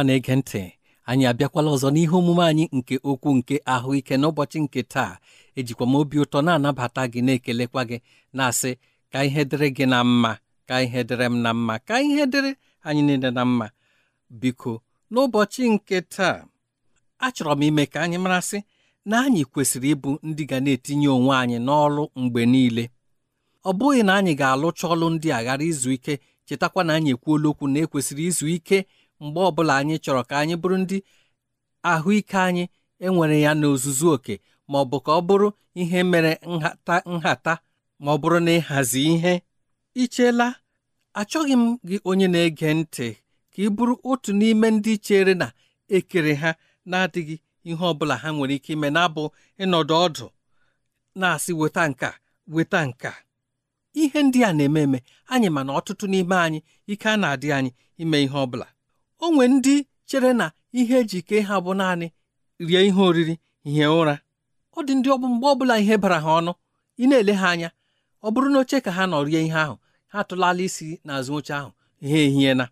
ọma na-ege ntị anyị abịakwala ọzọ n'ihe omume anyị nke okwu nke ahụike n'ụbọchị nke taa ejikwa m obi ụtọ na-anabata gị na-ekelekwa gị na-asị ka ihe dịrị gị na mma ka ihe dịrị m na mma ka ihe dịrị anyị niile na mma biko n'ụbọchị nke taa achọrọ m ime ka anyị marasị na anyị kwesịrị ịbụ ndị ga na-etinye onwe anyị n'ọrụ mgbe niile ọ bụghị na anyị ga-alụcha ọlụ ndị a ghara izu ike chetakwa na anyị ekwuola okwu na ekwesịrị izu ike mgbe ọbụla anyị chọrọ ka anyị bụrụ ndị ahụike anyị enwere ya n'ozuzu oke ma ọ bụ ka ọ bụrụ ihe mere nhata nhata ma ọ bụrụ na ịhazi ihe ichela achọghị m gị onye na-ege ntị ka ị bụrụ otu n'ime ndị chere na ekere ha na-adịghị ihe ọbụla ha nwere ike ime na-abụ ịnọdụ ọdụ na-asị weta nka weta nka ihe ndị a na-eme eme anyị ma na ọtụtụ n'ime anyị ike a na-adị anyị ime ihe ọ bụla o nwee ndị chere na ihe eji kee ha bụ naanị rie ihe oriri hie ụra ọ dị ndị ọbụ mgbe ọbụla ihe bara ha ọnụ ị na-ele ha anya ọ bụrụ na oche ka ha nọ rie ihe ahụ ha tụlala isi n'azụ oche ahụ ha ehie na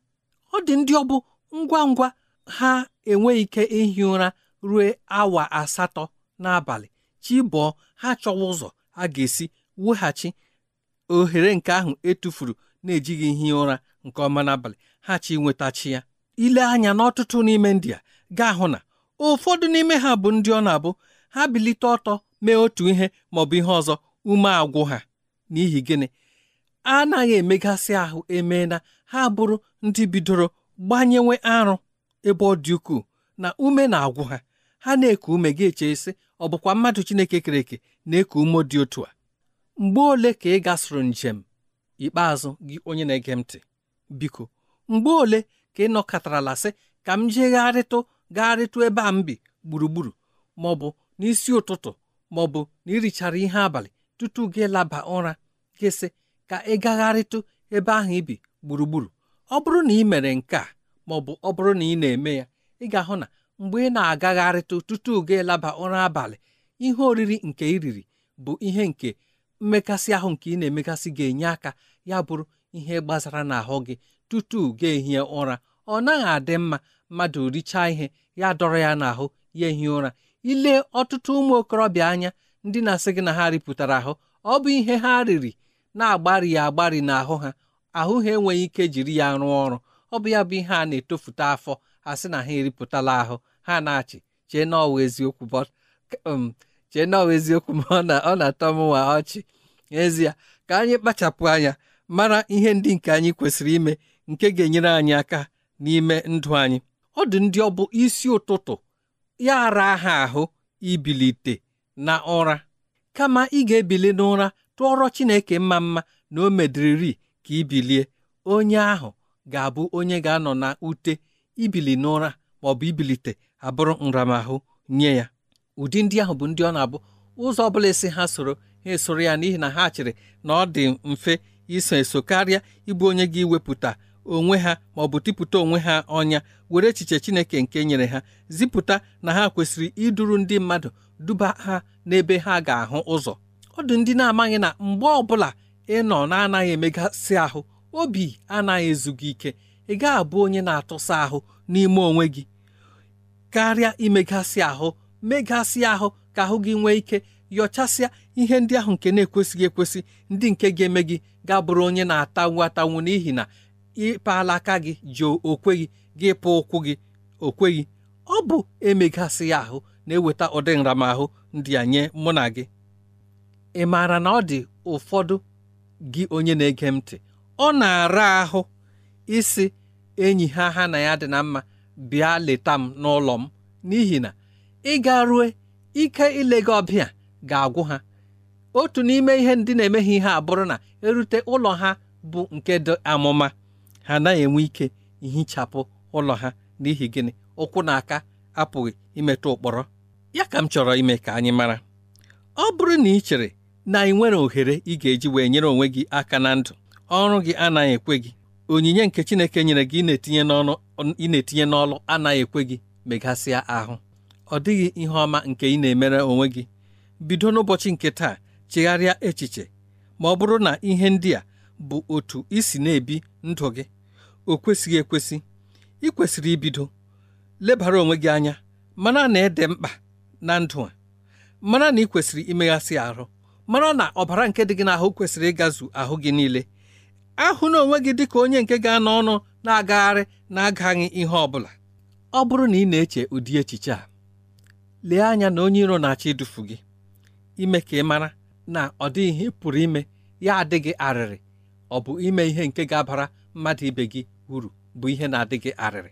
ọ dị ndị ọbụ ngwa ngwa ha enweghị ike ihi ụra ruo awa asatọ n'abalị chi bụọ ha chọwa ụzọ a ga-esi weghachi ohere nke ahụ etufuru na-ejighị ihi ụra nke ọma n'abalị ha chi nwetachi ya ile anya n'ọtụtụ n'ime ndị a gaa hụ na ụfọdụ n'ime ha bụ ndị ọ na-abụ ha bilite ọtọ mee otu ihe maọbụ ihe ọzọ ume agwụ ha n'ihi gịnị anaghị emegasị ahụ e na ha bụrụ ndị bidoro gbanyewe arụ ebe ọ dị ukwuu na ume na-agwụ ha ha na-eku ume gị echesi ọ bụkwa mmadụ Chineke kere eke na-eku ume dị otu a mgbe ole ka ị gasịrị njem ikpeazụ gị onye na-ege ntị biko mgbe ole ka ị nọkọtarala sị ka m jegharịtụ gagharịtụ ebe a m bi gburugburu ma ọ bụ n'isi ụtụtụ ma ọ bụ na ihe abalị tutu gị laba ụra gị sị ka ị gagharịtụ ebe ahụ ibi gburugburu ọ bụrụ na ị mere nke a ma ọ bụ ọ bụrụ na ị na-eme ya ị ga-ahụ na mgbe ị na-agagharịtụ tutu gị laba ụra abalị ihe oriri nke iriri riri bụ ihe nke mmekasị ahụ nke ị na-emekasị ga-enye aka ya bụrụ ihe gbasara n'ahụ gị tutu gị ehie ụra ọ naghị adị mma mmadụ richaa ihe ya dọrọ ya n'ahụ ya ehi ụra ile ọtụtụ ụmụ okorobịa anya ndị na-asị gị na ha ripụtara ahụ ọ bụ ihe ha riri na-agbari ya agbari n'ahụ ha ahụ ha enweghị ike jiri ya rụọ ọrụ ọ bụ ya bụ ihe a na-etofute afọ sị na ha eripụtala ahụ ha na-achị chee na ọwa eziokwu um, chee eziokwu ma ọ na-atọ m nwa ọchị n'ezie ka anyị kpachapụ anya mara ihe ndị nke anyị kwesịrị ime nke ga-enyere anyị aka n'ime ndụ anyị ọ dị ndị ọ bụ isi ụtụtụ ya ara ha ahụ ibilite na ụra kama ị ga-ebili n'ụra tụọrọ Chineke mma mma na o mediriri ka ibilie onye ahụ ga-abụ onye ga-anọ na ute ibili n'ụra ma ọ bụ ibilite abụrụ nramahụ nye ya ụdị ndị ahụ bụ ndị ọ na-abụ ụzọ ọ bụla esi ha soro ha esoro ya n'ihi na ha chịrị na ọ dị mfe iso eso karịa ịbụ onye ga-iwepụta onwe ha ma ọ bụ tipụta onwe ha ọnya were echiche Chineke nke nyere ha zipụta na ha kwesịrị iduru ndị mmadụ duba ha n'ebe ha ga-ahụ ụzọ ọ dị ndị na-amaghị na mgbe ọbụla ị nọ na-anaghị emegasị ahụ obi anaghị ezu ike ị ga-abụ onye na-atụsa ahụ n'ime onwe gị karịa imegasị ahụ megasị ahụ ka ahụ gị nwee ike yọchasịa ihe ndị ahụ nke na-ekwesịghị ekwesị ndị nke ga-eme gị ga-abụrụ onye na-atanwu atanwu n'ihi na ịkpala aka gị ji okweghị gị pụ ụkwụ gị okweghị ọ bụ emegasị ya ahụ na-eweta ụdị nramahụ ndị a nye mụ na gị ị maara na ọ dị ụfọdụ gị onye na-ege m ntị ọ na-ara ahụ isi enyi ha ha na ya dị na mma bịa leta m n'ụlọ m n'ihi na ịga rue ike ile gị ọbịa ga-agwụ ha otu n'ime ihe ndị na-emeghị ihe abụrụ na erute ụlọ ha bụ nke dị amụma ha anaghị enwe ike ihichapụ ụlọ ha n'ihi gịnị ụkwụ na aka apụghị imetụ ụkpọrọ ya ka m chọrọ ime ka anyị mara ọ bụrụ na ị chere na ị nwere ohere ị ga-eji wee nyere onwe gị aka na ndụ ọrụ gị anaghị ekwe gị onyinye nke Chineke nyere gị etinye n'ọnụ ị na-etinye n'ọlụ anaghị ekwe gị megasịa ahụ ọ dịghị ihe ọma nke ị na-emere onwe gị bido n'ụbọchị nke taa chegharịa echiche ma ọ bụrụ na ihe ndị a bụ otu isi na-ebi ndụ gị o kwesịghị ekwesị ị kwesịrị ibido lebara onwe gị anya mara na ede mkpa na ndụ a mara na ị kwesịrị imeghasị ahụ mara na ọbara nke dị gị n'ahụ kwesịrị ịgazu ahụ gị niile ahụ na onwe gị dị ka onye nke ga-anọ ọnụ na-agagharị na-agaghị ihe ọ bụla ọ bụrụ na ị na-eche ụdị echiche a lee anya na onye iro na-achọ idufu gị ime ka ị mara na ọ dịghị ihe pụrụ ime ya adịghị arịrị ọ bụ ime ihe nke ga-abara mmadụ ibe gị uru bụ ihe na-adị gị arịrị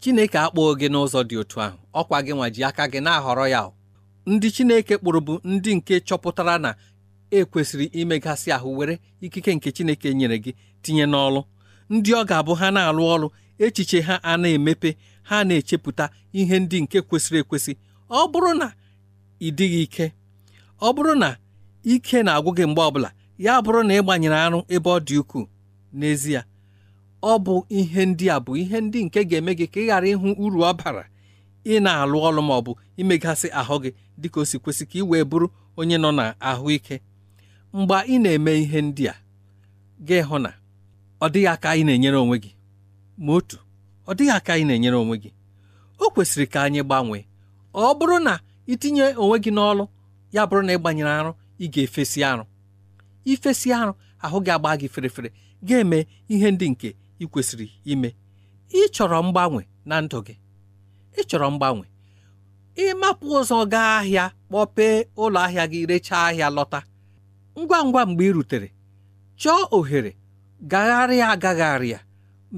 Chineke akpọghị gị n'ụzọ dị otu ahụ ọkwa gị nwa ji aka gị na-ahọrọ ya ndị Chineke kpụrụ bụ ndị nke chọpụtara na ekwesịrị imegasị ahụ were ikike nke Chineke nyere gị tinye n'ọlụ ndị ọ ga-abụ ha na-alụ ọrụ echiche ha a na-emepe ha na-echepụta ihe ndị nke kwesịrị ekwesị ọ bụrụ na ịdịghị ike ọ bụrụ na ike na-agwụ gị mgbe ọbụla ya bụrụ na ị gbanyere arụ ebe ọ dị ukwuu n'ezie ọ bụ ihe ndị a bụ ihe ndị nke ga-eme gị ka ị ghara ịhụ uru ọ bara ị na-alụ ọrụ ma ọ bụ imegasị ahụ gị dịka o si kwesị ka ị wee bụrụ onye nọ na ahụike mgbe ị na-eme ihe ndị a gị hụ na ọ dịghị aka ị na-enyere onwe gị ma otu ọ dịghị aka ị na-enyere onwe gị o kwesịrị ka anyị gbanwee ọ bụrụ na itinye onwe gị n'ọlụ ya bụrụ na ị gbanyere arụ ị ga-efesi arụ ifesi arụ ahụ gị agba gị ferefere ga-eme ihe ndị nke ị kwesịrị ime ị chọrọ mgbanwe na ndụ gị ị chọrọ mgbanwe ịmapụ ụzọ gaa ahịa kpọpee ụlọ ahịa gị rechaa ahịa lọta ngwa ngwa mgbe ị rutere chọọ ohere gagharịa agagharịa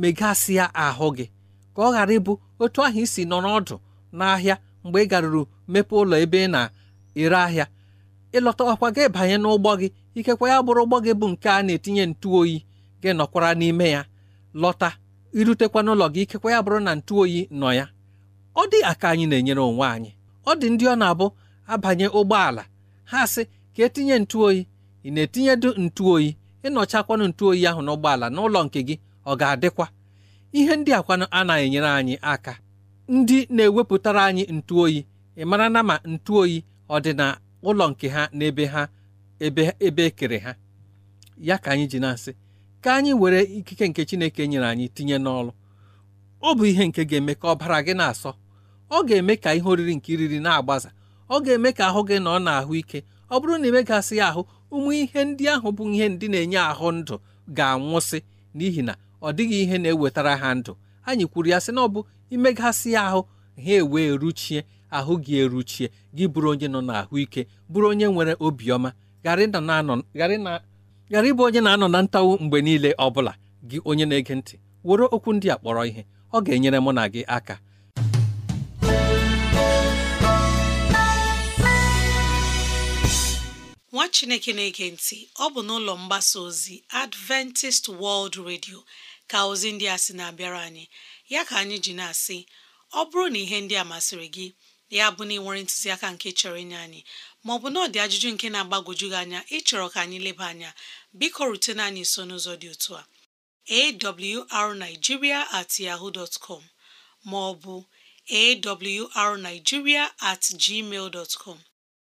megasịa ahụ gị ka ọ ghara ịbụ otu ahụ isi nọ n'ọdụ n'ahịa mgbe ị garuru mepee ụlọ ebe ị na-ere ahịa ịlọta ọkwa gị banye n'ụgbọ gị ikekwa ya bụrụ ụgbọ gị bụ nke a na-etinye ntu oyi gị nọkwara n'ime ya lọta irutekwa n'ụlọ gị ikekwa ya bụrụ na ntụ oyi nọ ya ọ dị aka anyị na-enyere onwe anyị ọ dị ndị ọ na-abụ abanye ụgbọala ha sị ka etinye ntụoyi ị na-etinyedu ntụoyi ịnọchakwanụ ntụoyi ahụ n'ụgbọala n'ụlọ nke gị ọ ga-adịkwa ihe ndị akwanụ anaghị enyere anyị aka ndị na-ewepụtara anyị ntụoyi ị mara na ma ntụoyi ọ dị na ụlọ nke ha na ebe ha ebe ebe ekere ha ya ka anyị ji na-asị ka anyị were ikike nke Chineke nyere anyị tinye n'ọlụ ọ bụ ihe nke ga-eme ka ọbara gị na-asọ ọ ga-eme ka ihe oriri nke iriri na-agbaza ọ ga-eme ka ahụ gị nọ n'ahụ ike ọ bụrụ na imegasị ya ahụ ụmụ ihe ndị ahụ bụ ihe ndị na-enye ahụ ndụ ga-anwụsị n'ihi na ọ dịghị ihe na-ewetara ha ndụ anyị kwuru ya sị na ọ bụ imegasị ya ahụ ha ewee ruchie ahụ gị eruchie gị bụrụ onye nọ n'ahụike bụrụ onye nwere obiọma ghara ịbụ onye na-anọ na ntawu mgbe niile ọ bụla gị onye na-ege ntị were okwu ndị a kpọrọ ihe ọ ga-enyere mụ na gị aka nwa chineke na-ege ntị ọ bụ n'ụlọ mgbasa ozi adventist world radio ka ozi ndị a sị na-abịara anyị ya ka anyị ji na-asị ọ bụrụ na ihe ndị a masịrị gị ya bụ na ị nwere ntụziaka nke chọrọ inye anyị ma maọbụ na ọ dị ajụjụ nke na-agbagwoju gị anya ịchọrọ ka anyị leba anya biko rutene anyị nso n'ụzọ dị otu a awrnigeria at ọ bụ com maọbụ awrnigeria at gmail na- com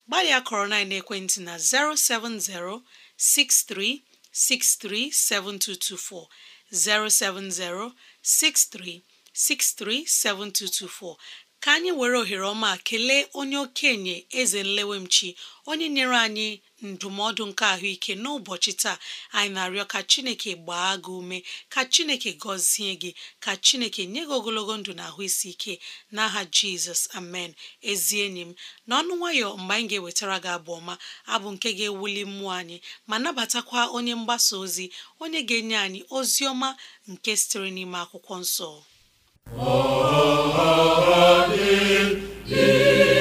gbalịa kọrọ na ekwentị na 07063637224 ka anyị were ohere ọma kelee onye okenye eze nlewemchi onye nyere anyị ndụmọdụ nke ahụike n'ụbọchị taa anyị na-arịọ ka chineke gbaa gị ume ka chineke gọzie gị ka chineke nye gị ogologo ndụ na ahụ isi ike n'aha jizọs amen ezi enyi m na ọnụ nwayọ mgbe anyị ga-ewetara gị abụ ọma abụ nke ga-ewuli mmụọ anyị ma nabatakwa onye mgbasa ozi onye ga-enye anyị ozi ọma nke sitere n'ime akwụkwọ nsọ Oh, oh, oh,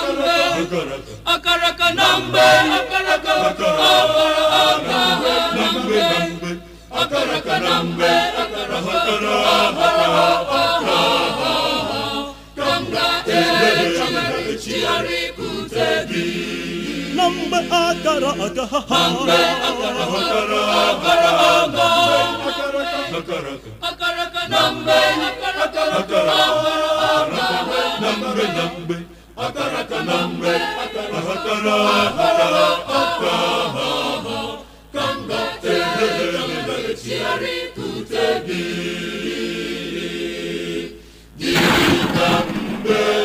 akaraka na mgbe akaraka na mgbe akaraka na mgbe ka m ga-echigharị ikute gị na mgbe akara aga ha mgbe akara akara akaraka na mgbe akaraka na na mgbe na mgbe akaraka na mgbe aka ha ka m ga gị aka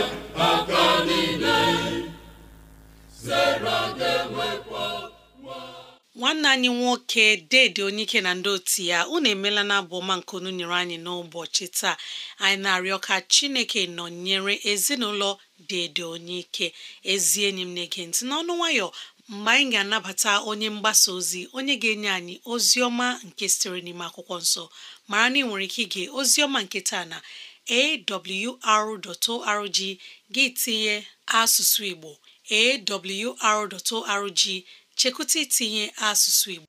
nwanne anyị nwoke dede ike na ndị otu ya unu emeela na abụ ọma nke unu nyere anyị n'ụbọchị taa anyị na-arịọ ka chineke nọnyere ezinụlọ dede ike ezi enyi m na-ege ntị n'ọnụ nwayọ mgbe anyị ga-anabata onye mgbasa ozi onye ga-enye anyị ozi ọma nke sitere n'ime akwụkwọ nsọ mara na ị nwere ike ige ozi ọma nke taa na awr.org gị tinye asụsụ igbo awr.org chekwụta itinye asụsụ Igbo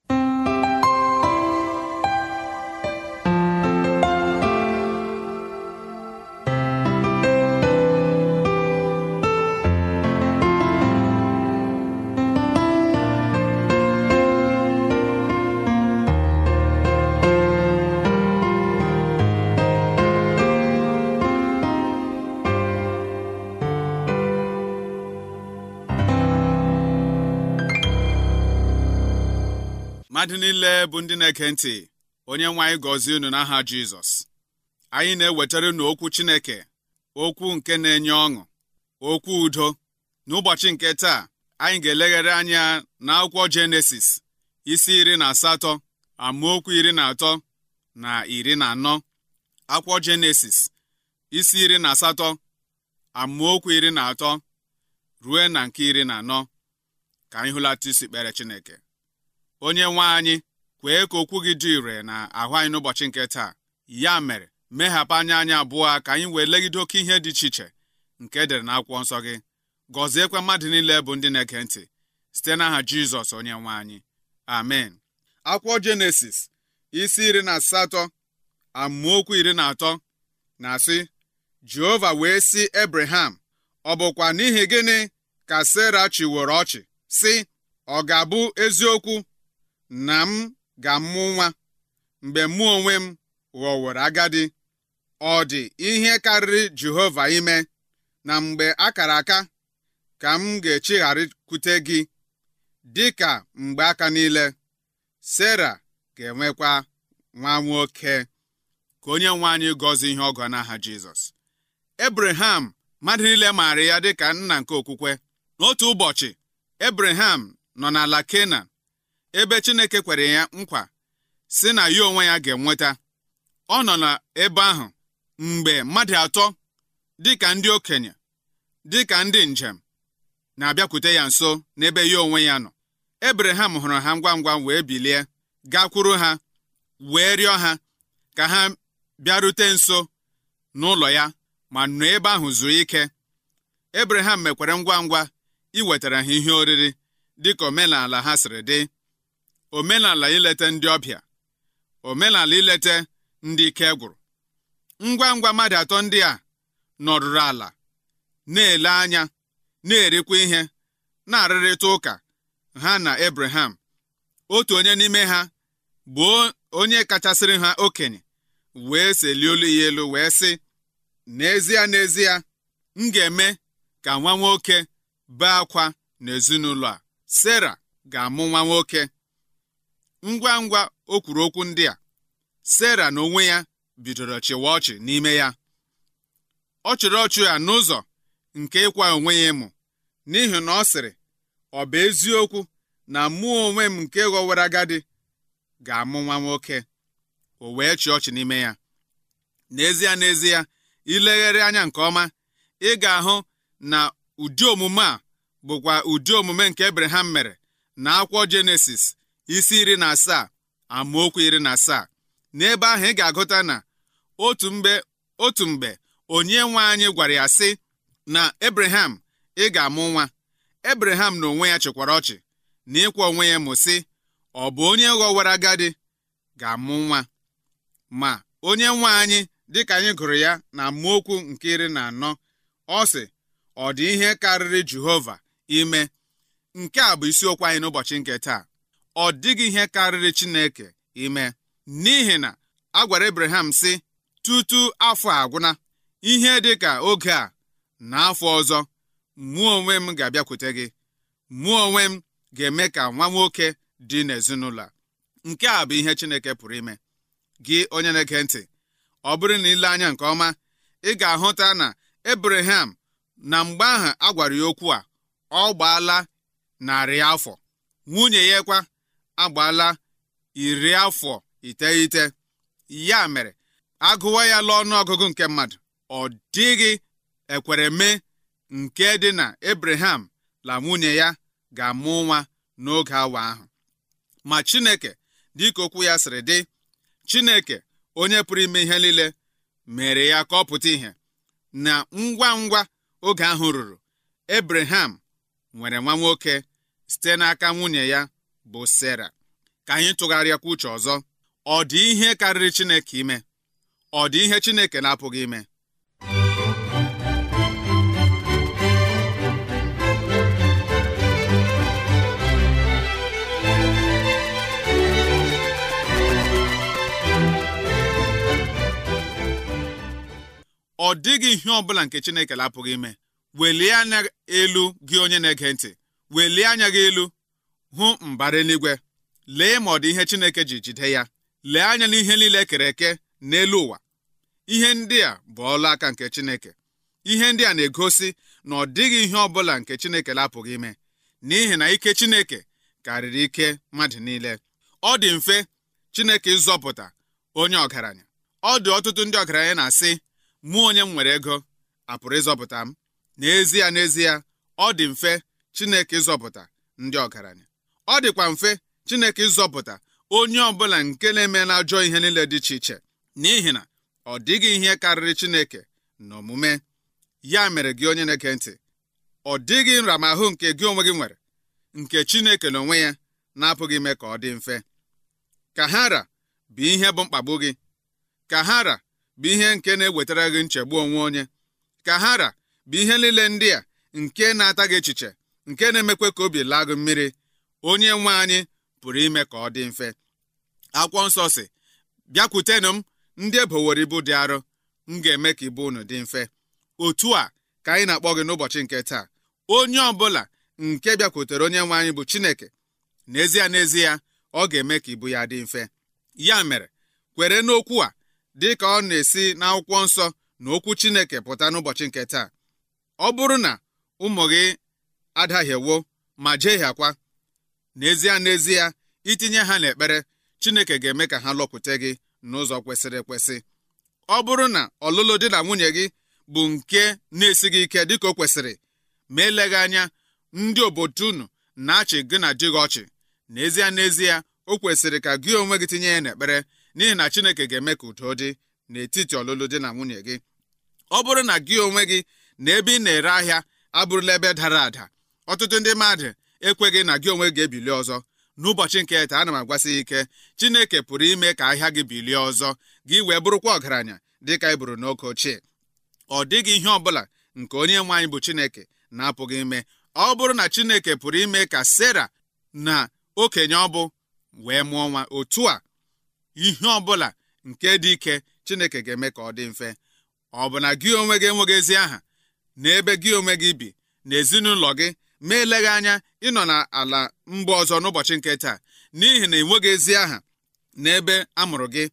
bụ ndị na-eke ntị onye nwe anyị gọzie unu n'aha Jizọs anyị na-ewetara unu okwu Chineke okwu nke na-enye ọṅụ okwu udo n'ụbọchị nke taa anyị ga-elegharị anya akwụkwọ Jenesis isi iri na asatọ amaokwu iri na atọ na iri na anọ akwụkwọ Jenesis isi iri na asatọ amaokwu iri na atọ ruo na nke iri na anọ ka anyị hụlata isi kpere Chineke onye nwe anyị kwee ka okwu gị dị ire na ahụ anyị n'ụbọchị nke taa ya mere meghapụ anya anyị abụọ ka anyị wee legide oke ihe dị iche iche nke edere na akwụkwọ nsọ gị gọziekwa mmadụ niile bụ ndị na-ege ntị site n'aha Jizọs onye nwe anyị amen akwụkwọ Jenesis isi iri na asatọ amaokwu iri na atọ na-asị Jehova wee sị Ebreham ọ bụkwa n'ihi gịnị ka Sera chiworo ọchị sị ọ ga-abụ eziokwu na m ga-amụ nwa mgbe mụ onwe m ghọworo agadi ọ dị ihe karịrị Jehova ime na mgbe akara aka ka m ga-echigharịkwute gị dịka mgbe aka niile sarah ga-enwekwa nwa nwoke ka onye nwe anyị gọzie ihe ọgọ n'aha Jizọs Ebraham mmadụ niile maara ya dịka nna nke okwukwe n'otu ụbọchị Ebraham nọ n'ala Kenan ebe Chineke kwere ya nkwa si na ya onwe ya ga-enweta ọ nọ n'ebe ahụ mgbe mmadụ atọ dịka ndị okenye dịka ndị njem na-abịakwute ya nso n'ebe ya onwe ya nọ Ebreham hụrụ ha ngwa ngwa wee bilie gakwuru ha wee rịọ ha ka ha bịarute nso n'ụlọ ya ma nọ ebe ahụ zuo ike Ebreham mekwere ngwa ngwa iwetara ha ihe oriri dịka omenala ha siri dị omenala ileta ndị ọbịa omenala ileta ndị ike gwụrụ ngwa ngwa mmadụ atọ ndị a nọrụrụ ala na-ele anya na-erikwa ihe na-arịrịta ụka ha na Abraham otu onye n'ime ha bụ onye kachasịrị ha okenye wee seli olu ya elu wee sị n'ezie n'ezie m ga-eme ka nwa nwoke bee akwa n'ezinụlọ a Sera ga-amụ nwa nwoke ngwa ngwa o kwuru okwu ndị a Sera n'onwe ya bidoro chịwa ọchị n'ime ya ọ chịrị ọchị ya n'ụzọ nke ịkwa onwe ya ịmụ n'ihi na ọ sịrị ọ bụ eziokwu na mụ onwe m nke ghọwara agadi ga-amụ nwa nwoke o wee chịa ọchị n'ime ya n'ezie n'ezie ilegharị anya nke ọma ị ga-ahụ na ụdị omume a bụkwa ụdị omume nke Abraham mere na akwụkwọ Jenesis isi iri na asaa amaokwu iri na asaa n'ebe ahụ ị ga-agụta na otu mgbe onye nwe anyị gwara ya sị na Abraham ị ga-amụ nwa Abraham na onwe ya chịkwara ọchị na ịkwa onwe ya mụsị ọ bụ onye ghọwara agadi ga-amụ nwa ma onye nwe anyị dịka anyị gụrụ ya na amaokwu nke iri na anọ ọ sị ọ dị ihe karịrị Jehova ime nke a bụ isiokwu anyị n'ụbọchị nke taa ọ dịghị ihe karịrị Chineke ime n'ihi na a gwara Abraham sị tutu afọ agwụna ihe dị ka oge a na afọ ọzọ mụọ onwe m ga-abịakwute gị mụọ onwe m ga-eme ka nwa nwoke dị n'ezinụlọ a nke a bụ ihe Chineke pụrụ ime gị onye na-ege ntị ọ bụrụ na ile anya nke ọma ị ga-ahụta na Abraham na mgbe ahụ a gwara ya okwu a ọ gbaala narị afọ nwunye ya kwa agbaala iri afọ iteghete ya mere agụwa ya lụọ ọnụọgụgụ nke mmadụ ọ dịghị ekwere mee nke dị na Abraham la nwunye ya ga-amụ nwa n'oge awa ahụ ma Chineke dịka okwu ya sịrị dị Chineke onye pụrụ ime ihe niile mere ya ka ọ pụta ihe na ngwa ngwa oge ahụ ruru Abraham nwere nwa nwoke site n'aka nwunye ya bụ Sera ka anyị tụgharịakwa uche ọzọ ọ dị ihe karịrị Chineke ime ọ dị ihe Chineke na-apụghị ime ọ dịghị ihe ọ bụla nke Chineke lapụghị ime, ime welie anya elu gị onye na-ege ntị welie anya gị elu hụ mbara eluigwe lee ma ọ dị ihe Chineke ji jide ya lee anya n'ihe niile e kere eke n'elu ụwa ihe ndị a bụ ọlụ aka nke Chineke ihe ndị a na-egosi na ọ dịghị ihe ọ bụla nke Chineke lapụghị ime n'ihi na ike Chineke karịrị ike mmadụ niile ọ dị mfe Chineke ịzọpụta onye ọgaranya ọ dị ọtụtụ ndị ọgaranya na-asị mụ onye m nwere ego apụrụ ịzọpụta m n'ezie n'ezie ọ dị mfe Chineke ịzọpụta ndị ọgaranya ọ dịkwa mfe Chineke ịzọpụta onye ọbụla nke na-eme ajọ ihe niile dị iche iche n'ihi na ọ dịghị ihe karịrị Chineke na omume ya mere gị onye na-ege ntị ọ dịghị nramahụ nke gị onwe gị nwere nke Chineke onwe ya na-apụghị ime ka ọ dị mfe ka hara bụ ihe bụ mkpagbu gị ka hara bụ ihe nke na-ewetara gị nchegbu onwe onye ka hara bụ ihe niile ndị a nke na-ata gị echiche nke na-emekwa ka obi laa gị mmiri onye nwe anyị pụrụ ime ka ọ dị mfe akwụkwọ nsọ si bịakwutenụ m ndị ebowere ibu dị arọ m ga-eme ka ibu unu dị mfe otu a ka anyị na-akpọ gị n'ụbọchị nke taa onye ọbụla nke bịakwutere onye nwe anyị bụ Chineke n'ezie n'ezie ọ ga-eme ka ibu ya dị mfe ya mere kwere n'okwu a dị ka ọ na-esi n'akwụkwọ nsọ na okwu Chineke pụta n'ụbọchị nke taa ọ bụrụ na ụmụ gị adaghị ewo ma jehiakwa n'ezie n'ezie itinye ha n'ekpere Chineke ga-eme ka ha lọpụta gị n'ụzọ kwesịrị ekwesị ọ bụrụ na ọlụlụ di na nwunye gị bụ nke na-esighị ike dịka o kwesịrị ma eleghị anya ndị obodo unu na-achị gị na di gị ọchị n'ezie n'ezie o kwesịrị ka gị onwe gị tinye ya n'ekpere n'ihi na Chineke ga-eme ka udo dị n'etiti ọlụlụ di na nwunye gị ọ bụrụ na gị onwe gị na ebe ị na-ere ahịa abụrụla ebe dara ada ọtụtụ ndị mmadụ ekweghị na gị onwe ga-ebili ọzọ n'ụbọchị nke taa ana m agwasị ike chineke pụrụ ime ka ahịa gị bilie ọzọ gị wee bụrụkwa ọgaranya dịka ị e bụrụ n'oge ochie ọ dịghị ihe ọ bụla nke onye nwe anyị bụ chineke na-apụghị ime ọ bụrụ na chineke pụrụ ime ka sera na okenye ọ bụ wee mụọ nwa otu a ihe ọbụla nke dị ike chineke ga-eme ka ọ dị mfe ọ bụ na gị onwe gị enweghị ezi aha na ebe gị onwe gị bi na ezinụlọ gị ma eleghị anya ịnọ n'ala mba ọzọ n'ụbọchị nke taa n'ihi na enweghị ezi aha n'ebe a mụrụ gị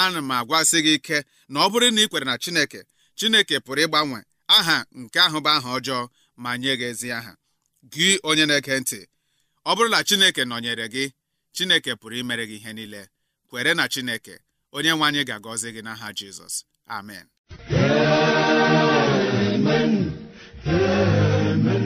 ana m agwasị gị ike na ọ bụrụ na ị kwere na Chineke Chineke pụrụ ịgbanwe aha nke ahụ bụ aha ọjọọ ma nye gị ezi aha gị onye na-ege ntị ọ bụrụ na Chineke nọnyere gị Chineke pụrụ imere gị ihe niile kwere na Chineke onye nwe anyị ga-agọzi gị n'aha Jizọs amen amen amen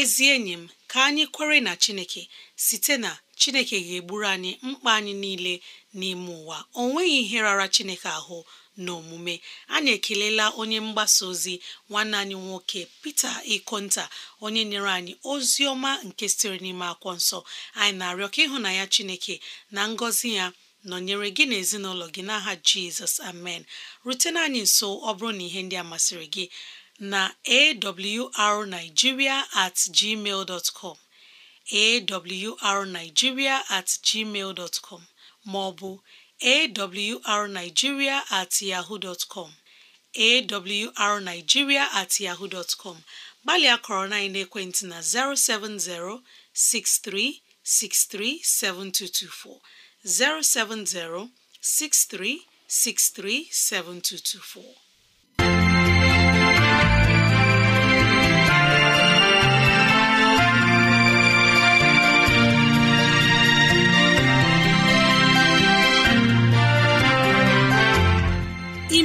ezi enyi m ka anyị kwere na chineke site na chineke ga-egburu anyị mkpa anyị niile n'ime ụwa o nweghị ihe rara chineke ahụ n'omume anyị ekelela onye mgbasa ozi nwanne anyị nwoke Peter Ikonta onye nyere anyị ozi ọma nke sitere n'ime akwụkwọ nsọ anyị na-arịọ ka ya Chineke na ngọzi ya nọnyere gị na ezinụlọ gị n'aha Jizọs amen rutena anyị nso ọ bụrụ na ihe ndị a masịrị gị na awrnigeria at gmail dot com awrnigeria at gmail dot com maọbụ awrnigeria at yahoo dot com awrnigeria at yahoo dot com gbalịa kọrọ na ekwentị na 070 6363 7224 070 6363 7224